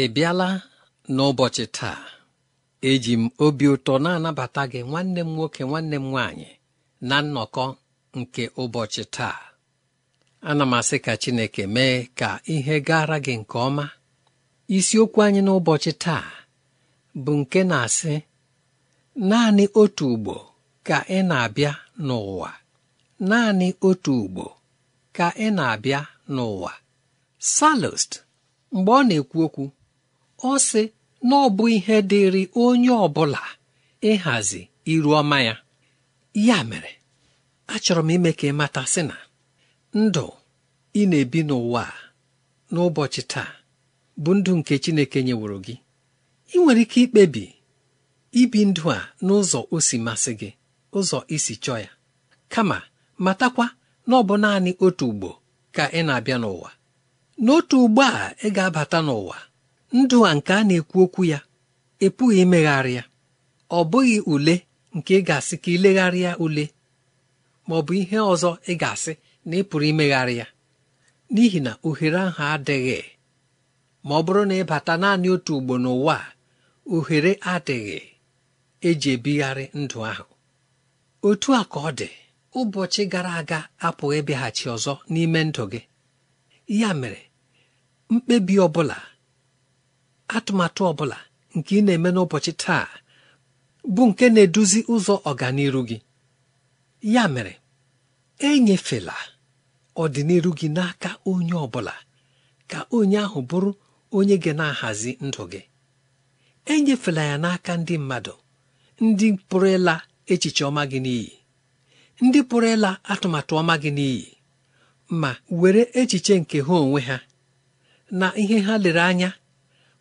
ị bịala n'ụbọchị taa eji m obi ụtọ na-anabata gị nwanne m nwoke nwanne m nwaanyị na nnọkọ nke ụbọchị taa ana m asị ka Chineke mee ka ihe gara gị nke ọma isiokwu anyị n'ụbọchị taa bụ nke na-asị naanị otu ugbo ka ị na-abịa n'ụwa naanị otu ugbo ka ị na-abịa n'ụwa salust mgbe ọ na-ekwu okwu ọ sị na ọ bụ ihe dịrị onye ọbụla ịhazi iru ọma ya ya mere achọrọ m ime ka ị mata sị na ndụ ị na-ebi n'ụwa n'ụbọchị taa bụ ndụ nke Chineke nyeworo gị ị nwere ike ikpebi ibi ndụ a n'ụzọ osi masị gị ụzọ isi chọọ ya kama matakwa na ọ bụ naanị otu ugbo ka ị na-abịa n'ụwa n'otu ugbo a ị ga-abata n'ụwa ndụ a nke a na-ekwu okwu ya epụghị imegharị ya ọ bụghị ule nke ị ga-asị ka ilegharịa ule ma ọ bụ ihe ọzọ ị ga-asị na ị pụrụ imegharị ya n'ihi na ohere ahụ adịghị ma ọ bụrụ na ị bata naanị otu ugbo n'ụwa ohere adịghị eji ebigharị ndụ ahụ otu a ka ọ dị ụbọchị gara aga apụghị ịbịaghachi ọzọ n'ime ndụ gị ya mere mkpebi ọ bụla atụmatụ ọ bụla nke ị na-eme n'ụbọchị taa bụ nke na-eduzi ụzọ ọganiru gị ya mere enyefela ọdịnihu gị n'aka onye ọbụla ka onye ahụ bụrụ onye gị na-ahazi ndụ gị enyefela ya n'aka ndị mmadụ ndị pụrụ ịla echiche ọma gị n'iyi ndị pụrụ ịla atụmatụ ọma gị n'iyi ma were echiche nke ha onwe ha na ihe ha lere anya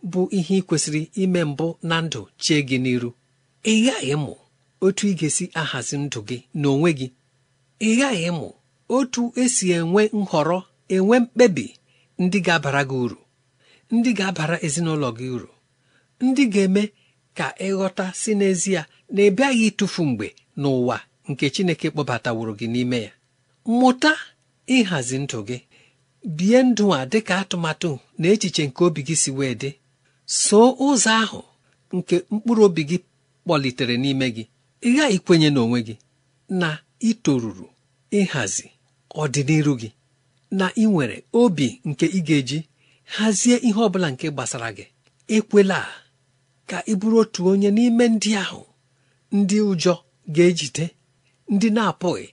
bụ ihe ị kwesịrị ime mbụ na ndụ chie gị n'iru ị ghaghị mụ otu ị ga-esi ahazi ndụ gị n'onwe gị ị ghaghị mụ otu esi enwe nhọrọ enwe mkpebi ndị ga-abara gị uru ndị ga-abara ezinụlọ gị uru ndị ga-eme ka ịghọta si n'ezie na ị bịaghị ịtụfu mgbe n'ụwa nke Chineke kpọbataworo gị n'ime ya mụta ịhazi ndụ gị bie ndụ a dịka atụmatụ na echiche nke obi gị si wee dị soo ụzọ ahụ nke mkpụrụ obi gị kpọlitere n'ime gị ịgha ikwenye n'onwe gị na itoruru ịhazi ọdịnihu gị na ị nwere obi nke ị ga-eji hazie ihe ọ bụla nke gbasara gị ekwela ka ị bụrụ otu onye n'ime ndị ahụ ndị ụjọ ga-ejide ndị na-apụghị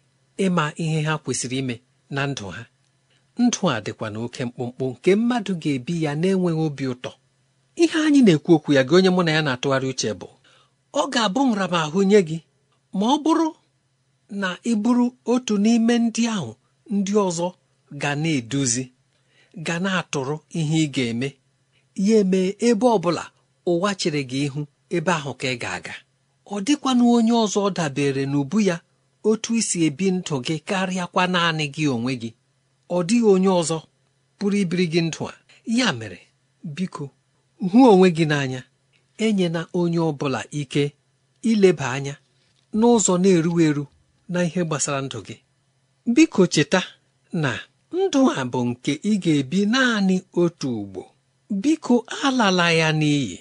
ịma ihe ha kwesịrị ime na ndụ ha ndụ a dịkwa na oke mkpụmkpụ nke mmadụ ga-ebi ya na-enweghị obi ụtọ ihe anyị na-ekwu okwu ya gị onye mụ na ya na-atụgharị uche bụ ọ ga-abụ nramahụ nye gị ma ọ bụrụ na ị bụrụ otu n'ime ndị ahụ ndị ọzọ ga na-eduzi ga na-atụrụ ihe ị ga-eme ya eme ebe ọ bụla ụwa chere gị ihu ebe ahụ ka ị ga-aga ọ dịkwana onye ọzọ dabere n'ubu ya otu isi ebi ndụ gị karịakwa naanị gị onwe gị ọ dịghị onye ọzọ pụrụ ibiri gị ndụ a ya mere biko hụ onwe gị n'anya enyela onye ọ bụla ike ileba anya n'ụzọ na-eru eru na ihe gbasara ndụ gị biko cheta na ndụ a bụ nke ị ga-ebi naanị otu ugbo biko alala ya n'iyi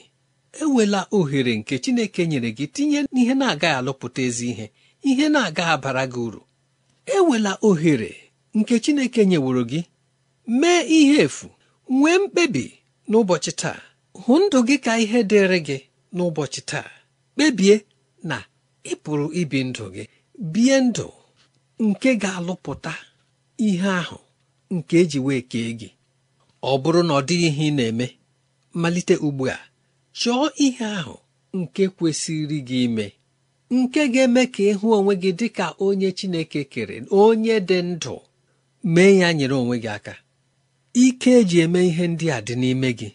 ewela ohere nke Chineke nyere gị tinye n'ihe na-agaghị alụpụta ezi ihe ihe na aga abara gị uru ewela ohere nke Chineke nyeworo gị mee ihe efu nwee mkpebi n'ụbọchị taa hụ ndụ gị ka ihe dịrị gị n'ụbọchị taa kpebie na ị pụrụ ibi ndụ gị bie ndụ nke ga-alụpụta ihe ahụ nke eji wee kee gị ọ bụrụ na ọ dịghị ihe ị na-eme malite ugbu a chọọ ihe ahụ nke kwesịrị gị ime nke ga-eme ka ịhụ onwe gị dị ka onye Chineke kere onye dị ndụ mee ya nyere onwe gị aka ike eji eme ihe ndị a dị n'ime gị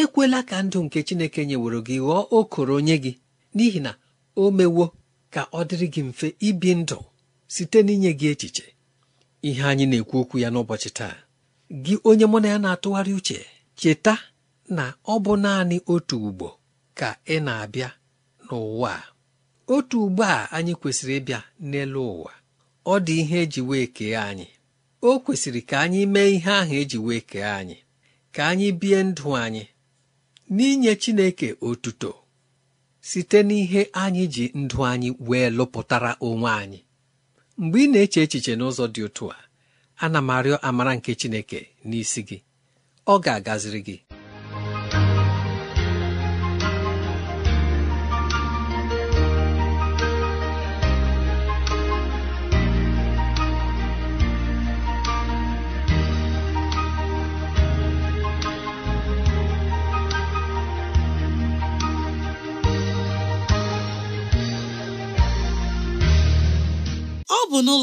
ekwela ka ndụ nke chineke nyeworo gị ghọọ okoro onye gị n'ihi na o mewo ka ọ dịrị gị mfe ibi ndụ site n'inye gị echiche ihe anyị na-ekwu okwu ya n'ụbọchị taa gị onye mụ na ya na-atụgharị uche cheta na ọ bụ naanị otu ugbo ka ị na-abịa n'ụwa otu ugbo a anyị kwesịrị ịbịa n'elu ụwa ọ dị ihe eji wee kee anyị o kwesịrị ka anyị mee ihe ahụ eji wee kee anyị ka anyị bie ndụ anyị n'inye Chineke otuto site n'ihe anyị ji ndụ anyị wee lụpụtara onwe anyị mgbe ị na-eche echiche n'ụzọ dị otu a ana m arịọ amara nke Chineke n'isi gị ọ ga-agaziri gị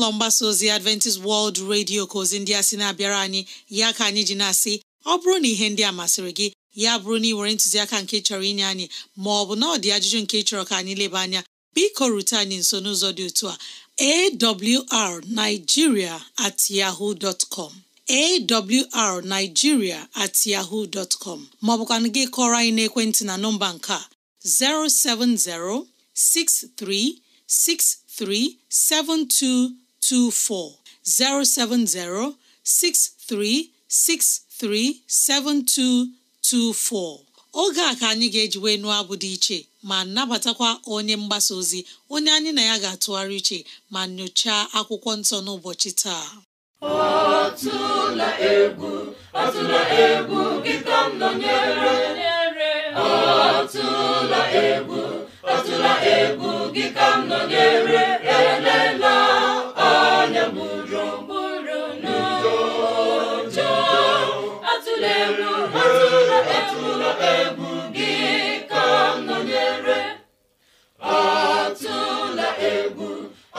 ụlọ mgbasa ozi Adventist World Radio ka ozi ndị a sị na-abịara anyị ya ka anyị ji na-asị ọ bụrụ na ihe ndị a masịrị gị ya bụrụ na ị were ntụziaka nke chọrọ inye anyị ma ọ bụ na ọ dị ajụjụ nke chọrọ ka anyị leba anya biko rute anyị nso n'ụzọ dị otu a awrnigeria at yahoo dot com awrnigeria at yahoo dot com gị kọrọ anyị n'ekwentị na nọmba nke a 070 6363 72 324 070 7224, oge a ka anyị ga-eji wee nụọ abụ dị iche ma nabatakwa onye mgbasa ozi onye anyị na ya ga-atụgharị iche ma nyochaa akwụkwọ nsọ n'ụbọchị taa atụla egwu atụla egwu gị ka m nọnyere atụla egwu atụla egwu gị ka m nọnyere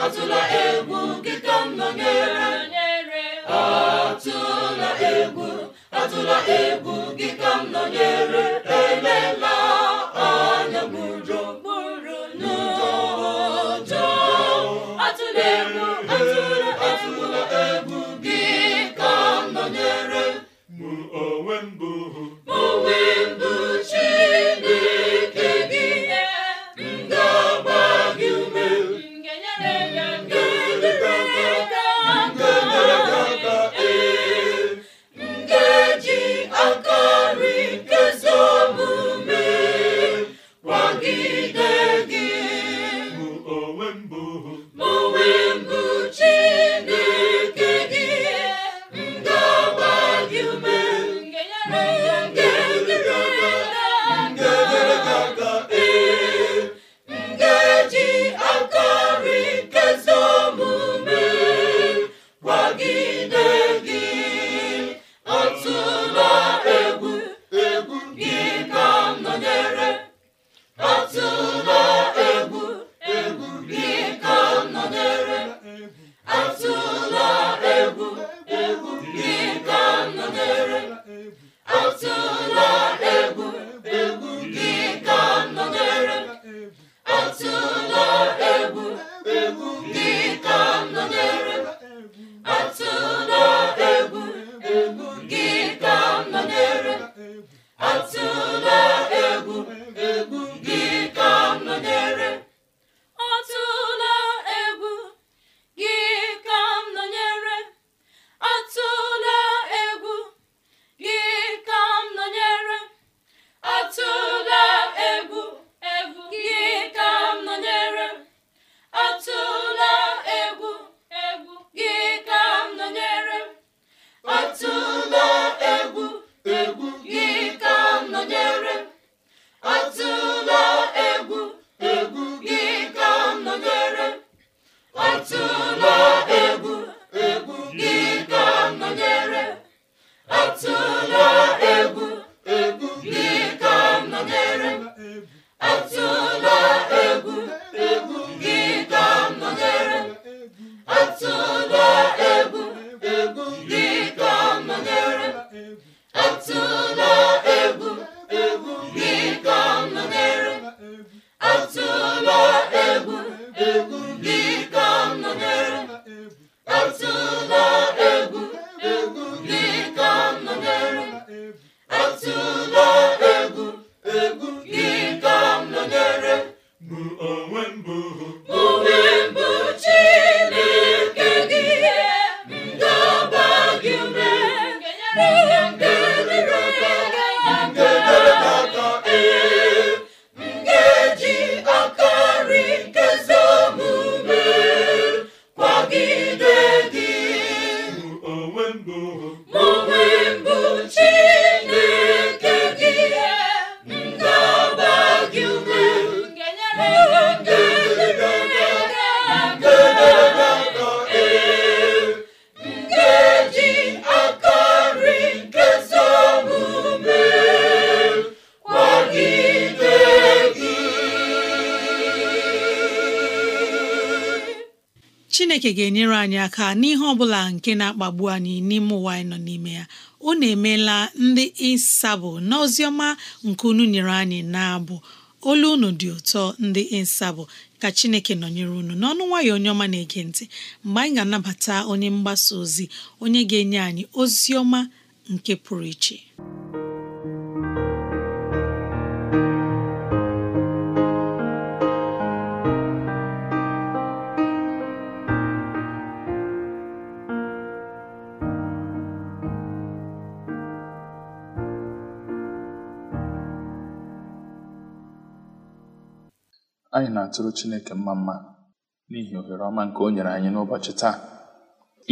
atụla egwu gị ka m nọnyere atụla egwu atụla egwu gị ka m nọnyere chineke ga-enyere anyị aka n'ihe ọ bụla nke na-akpagbu anyị n'ime ụwa anyị nọ n'ime ya unu emela ndị ịsabụ n'oziọma nke unu nyere anyị na-abụ olu unu dị ụtọ ndị ịsabụ ka chineke nọnyere unu n'ọnụ nwayọ onye ọma na-ege ntị mgbe anyị ga-anabata onye mgbasa ozi onye ga-enye anyị ozi ọma nke pụrụ iche Anyị na-atụrụ Chineke mma mma n'ihi ohere ọma nke o nyere anyị n'ụbọchị taa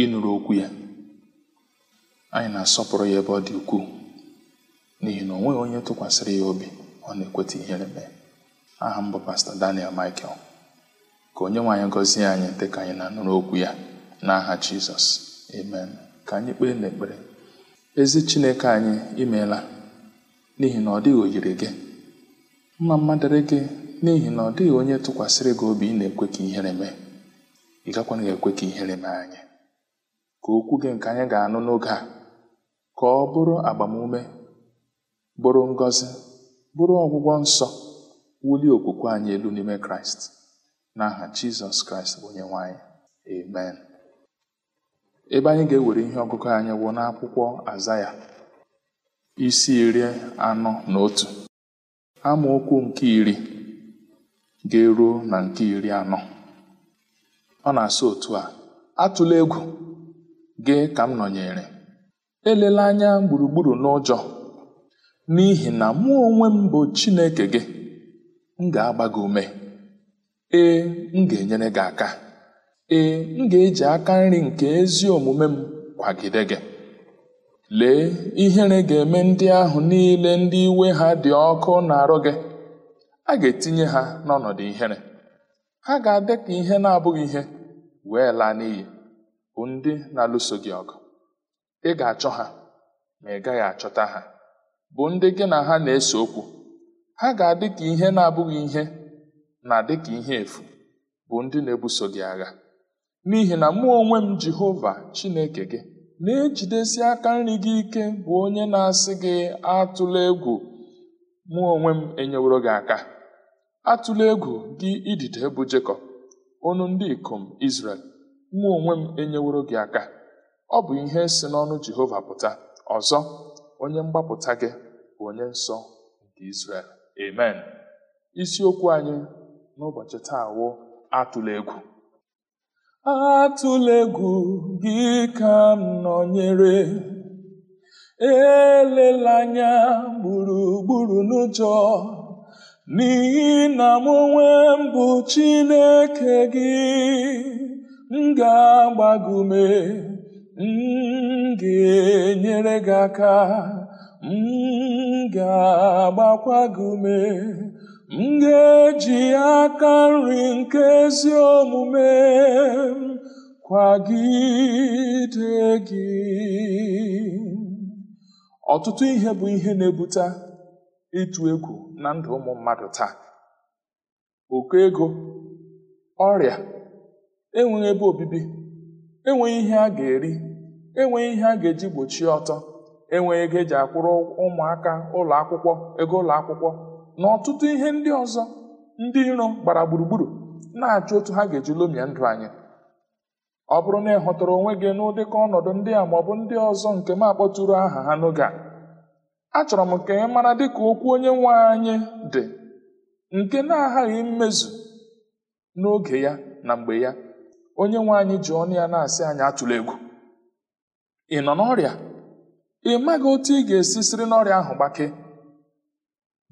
ịnụrụ okwu ya. Anyị na-asọpụrụ ya ebe ọ dị ukwuu n'ihi na o nweghị onye tụkwasịrị ya obi ọ na-ekweta ihere mee. Aha m bụ Pastọ Daniel Michael. Ka onye nwe anyị gọzie anyị dị ka anyị na-anụrụ okwu ya n'aha Jizọs amen. Ka anyị kpee n'ekpere. Ezi Chineke anyị imeela n'ihi na ọ dịghị oyiri gị mma mma gị n'ihi na ọ dịghị onye tụkwasịrị gị obi ị na-ekwe ka ihere mee ị gakwana ga-ekwe ka ihere mee anyị ka okwu gị nke anyị ga-anụ n'oge a ka ọ bụrụ agbamume bụrụ ngọzi bụrụ ọgwụgwọ nsọ wulie okwukwe anyị elu n'ime kraịst n'aha jizọs kraịst bụ onye nwanyị amen ebe anyị ga-ewere ihe ọgụgụ anyị wụ n'akwụkwọ azaya isi iri anọ na otu amaokwu nke iri ga-eruo na nke iri anọ ọ na asa otu a atụla egwu gị ka m nọnyere elela anya gburugburu n'ụjọ n'ihi na mụ onwe m bụ Chineke gị m ga-agba gị ume ee m ga-enyere gị aka ee m ga-eji aka nri nke ezi omume m kwagide gị lee ihere ga-eme ndị ahụ niile ndị iwe ha dị ọkụ na-arụ gị a ga-etinye ha n'ọnọdụ ihere ha ga-adị ka ihe na-abụghị ihe wee laa n'iyi bụ ndị na-alụso gị ọgụ ị ga-achọ ha ma ị gaghị achọta ha bụ ndị gị na ha na-ese okwu ha ga-adị ka ihe na-abụghị ihe na dị ka ihe efu bụ ndị na-ebuso gị agha n'ihi na mụ onwe m Jehova Chineke gị na-ejidesi aka nri gị ike bụ onye na-asị gị atụla egwu mụ onwe m enyeworo gị aka atụla egwu gị idide bụ Jekọb ọnụ ndị ikom Izrel mụ onwe m enyeworo gị aka ọ bụ ihe si n'ọnụ Jehova pụta ọzọ onye mgbapụta gị bụ onye nsọ nke Izrel amen isiokwu anyị n'ụbọchị taa wụ atụla egwu gị ka m nọnyere elela anya gburugburu n'ụjọ n'ihi na m onwe mbụ Chineke gị m ga-agbagume m ga-enyere gị aka m ga-agbakwa ume m ga-eji aka nri nke ezi omume kwagide gị ọtụtụ ihe bụ ihe na-ebute ịtụ egwu na ndụ ụmụ mmadụ taa oke ego ọrịa enweghị ebe obibi enweghị ihe a ga-eri enweghị ihe a ga-eji gbochie ọtọ enweghị ego eji akwụrụ ụmụaka ụlọ akwụkwọ ego ụlọ akwụkwọ na ọtụtụ ihe ndị ọzọ ndị iro gbara gburugburu na-achọ otu ha ga-eji lomie ndụ anyị ọ bụrụ na ị hụtara onwe gị n'ụdịka ọnọdụ ndị a maọbụ ndị ọzọ nke m akpọtụrụ aha ha n'oge a achọrọ m ka ị mara dịka okwu onye nwe anyị dị nke na-aghaghị mmezu n'oge ya na mgbe ya onye nwe anyị ji ọnụ ya na-asị anyị atụla egwu ị nọ n'ọrịa ị maghị otu ị ga-esi siri n'ọrịa ahụ gbake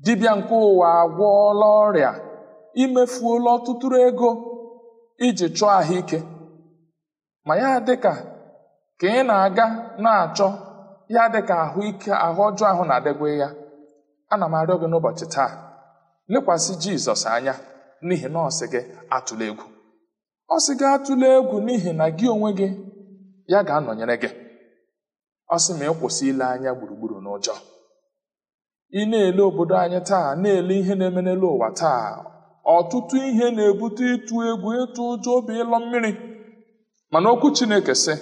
dibịa nke ụwa agwọọla ọrịa imefuola ọtụtụrụ ego iji chọọ ahụike ma ya dịka ka ị na-aga na-achọ ya dịka ahụ ike ahụ ọjọọ ahụ na-adegwe ya ana m arịọ gị n'ụbọchị taa lekwasị jizọs anya n'ihi na gị atụla egwu ọ sị gị atụla egwu n'ihi na gị onwe gị ya ga-anọnyere gị ọ sị ma ị kwụsị ile anya gburugburu n'ụjọ ị na-ele obodo anyị taa na-ele ihe na-eme n'elu ụwa taa ọtụtụ ihe na-ebute ịtụ egwu ịtụ ụjọ obi ịlọ mmiri mana okwu chineke sị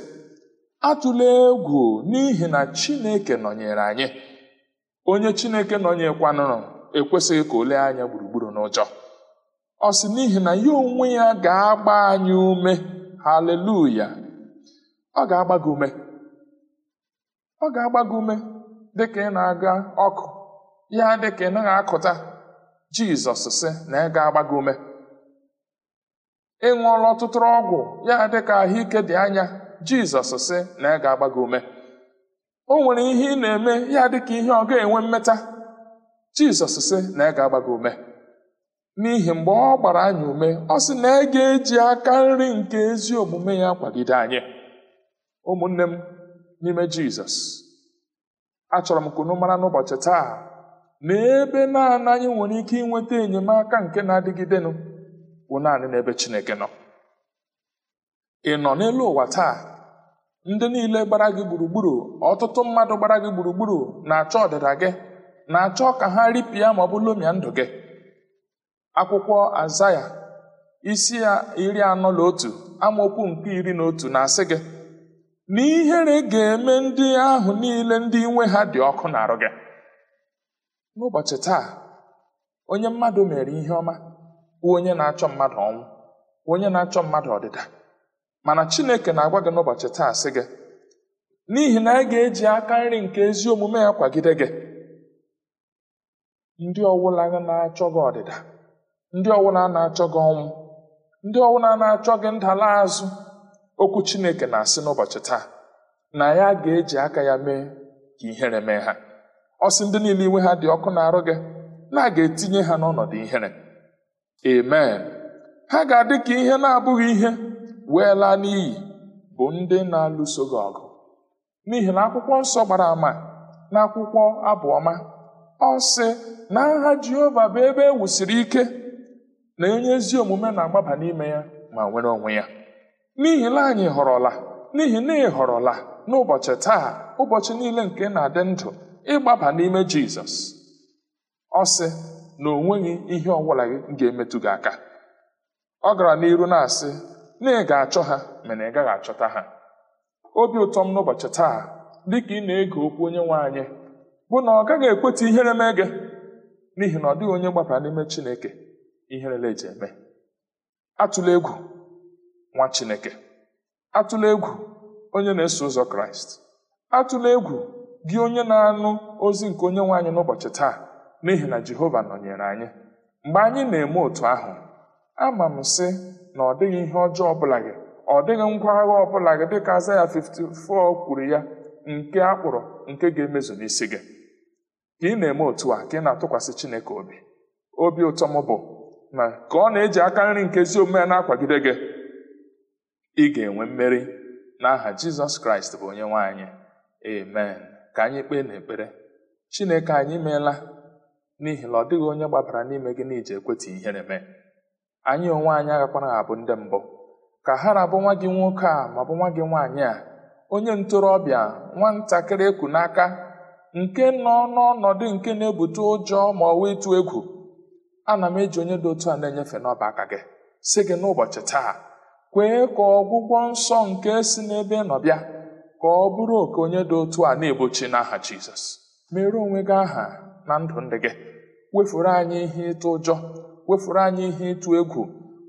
atụla egwu n'ihi na chineke nọnyere anyị onye chineke nọnyekwanụrụ ekwesịghị ka olee anya gburugburu n'ụjọ ọ sị n'ihi na ya onwe ya ga-agba anyị ume haleluya ọ ga-agba gị ume ọ ga-agba gị ume ka ị na-aga ọkụ ya dị ka ị naghị akụta jizọs sị na ị ga-agba gị ume ị ṅụọla ọtụtụ ọgwụ ya dị ka ahụike dị anya jizọs sị na ị ga-agba ume o nwere ihe ị na-eme ya dị ka ihe ọ ga-enwe mmeta jizọs sị na ị ga agbago gị ume n'ihi mgbe ọ gbara anyị ume ọ sị na ị ga-eji aka nri nke ezi omume ya kwagide anyị ụmụnne m n'ime jizọs achọrọ m kunu mara n'ụbọchị taa na ebe naanị anyị nwere ike inweta enyemaka nke na-adịgidenụ bụ naanị n'ebe Chineke nọ ị nọ n'elu ụwa taa ndị niile gbara gị gburugburu ọtụtụ mmadụ gbara gị gburugburu na-achọ ọdịda gị na-achọ ka ha ripịa ma ọ bụ lomia ndụ gị akwụkwọ azaya isi ya iri anọ na otu amaokwu nke iri na otu na-asị gị na ihere ga-eme ndị ahụ niile ndị nwe ha dị ọkụ na arụ gị n'ụbọchị taa onye mmadụ mere ihe ọma onye na-achọ mmadụ ọnwụ onye na-achọ mmadụ ọdịda mana chineke na-agwa gị n'ụbọchị taa sị gị n'ihi na anyị ga-eji aka nri nke ezi omume ya kwagide gị ndị ọwụla na-achọ gị ọdịda ndị ọwụla na-achọ gị ọnwụ ndị ọwụla na-achọ gị ndala azụ okwu chineke na-asị n'ụbọchị taa na ya ga-eji aka ya mee ka ihere mee ha ọsị ndị niile iwe ha dị ọkụ na-arụ gị na a ga-etinye ha n'ọnọdụ ihere amen ha ga-adị ka ihe na-abụghị ihe weela n'iyi bụ ndị na-alụso gị ọgụ n'ihi na akwụkwọ nsọ gbara àmà na akwụkwọ abụọma ọ sị na agha jehova bụ ebe e ike na onye ezi omume na-agbaba n'ime ya ma nwere onwe ya n'ihi na anyị họrọla n'ihi na ị họrọla n'ụbọchị taa ụbọchị niile nke na-adị ndụ ịgbaba n'ime jizọs ọ sị na o nweghị ihe ọbụla gị ga-emetụ gị aka ọ gara n'iru na-asị na ị ga-achọ ha mana ị gaghị achọta ha obi ụtọ m n'ụbọchị taa dịka ị na-ege okwu onye nwe anyị bụ na ọ gaghị ekweta ihere mee gị n'ihi na ọ dịghị onye gbabara n'ime Chineke ihere eji eme atụla egwu nwa Chineke atụla egwu onye na-eso ụzọ Kraịst atụla egwu gị onye na-anụ ozi nke onye nwe anyị n'ụbọchị taa n'ihi na Jehova nọnyere anyị mgbe anyị na-eme otu ahụ ama m sị na ọ dịghị ihe ọjọọ ọbụla gị ọ dịghị ngwa agha ọbụla gị dịka azaya 54 kwuru ya nke a nke ga-emezu n'isi gị ka ị na-eme otu a ka ị na-atụkwasị Chineke obi obi ụtọ m bụ na ka ọ na-eji aka nri nke ezi omume na-akwagide gị ị ga-enwe mmeri n'aha Jizọs Kraịst bụ onye nwe anyị amen ka anyị kpee n'ekpere Chineke anyị meela n'ihi na ọ dịghị onye gbabara n'ime gị na iji ekweta ihere mee anyị onwe anyị agakwana abụ ndị mbụ ka ha na nwa gị nwoke a ma bụ nwa gị nwaanyị a onye ntorobịa nwatakịrị ekwu n'aka nke nọ n'ọnọdụ nke na-ebute ụjọ ma ọ ịtụ egwu ana m eji onye dị otu a na-enyefe n'ọba aka gị si gị n'ụbọchị taa kwee ka ọgwụgwọ nsọ nke si n'ebe nọbịa ka ọ bụrụ oke onye dị otu a na-egbochi n'aha Jizọs mere onwe gị aha na ndụ ndị gị wefuru anyị ihe ịtụ ụjọ wefuru anyị ihe ịtụ egwu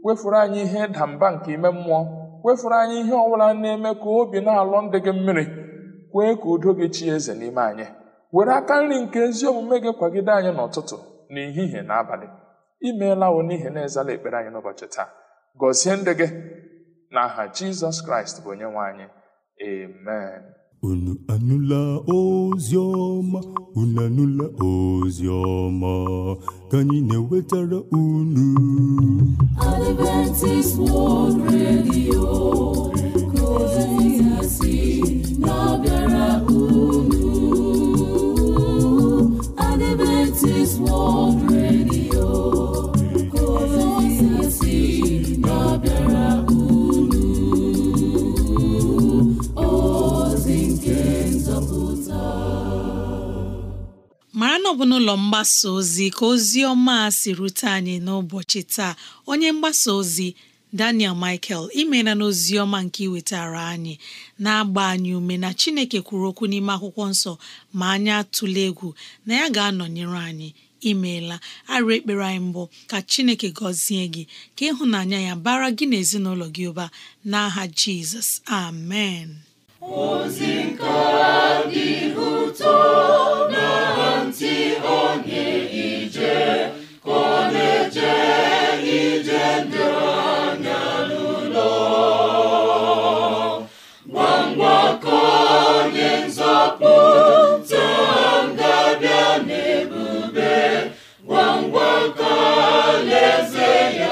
wefuru anyị ihe ịda mba nke ime mmụọ wefuru anyị ihe ọbụla na-eme ka obi na alụ ndị gị mmiri kwee ka udo gị chi eze n'ime anyị were aka nri nke ezi omume gị kwagide anyị n'ụtụtụ n'ehihie na abalị imeela wo n'ihi na ezala ekpere anyị n'ụbọchị taa gọzie ndị gị na aha jizọs kraịst bụ onye nwe anyị amen Unu anụla ozi ọma, unu anụla ozi ọma, ka anyị na-ewetara unu. unu. Adventist World mara na ọ bụ n'ụlọ mgbasa ozi ka ozi ọma si rute anyị n'ụbọchị taa onye mgbasa ozi Daniel Michael imela na ọma nke iwetara anyị na-agba anyị ume na Chineke kwuru okwu n'ime akwụkwọ nsọ ma anyị atụla egwu na ya ga-anọnyere anyị imeela arụ ekpere anyị mbụ ka Chineke gọzie gị ka ịhụnanya ya bara gị na gị ụba n'aha Jizọs amen ntị onye ije ka ọ na-eje ije ndị anya n'ụlọ gwa ngwa ka onye nzọpụta ga-abịa n'ebube gwa ngwa ka alaeze ya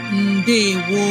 ndewo